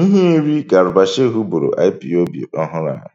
Iheiri ka Shehu bụrụ IPOB ọhụrụ a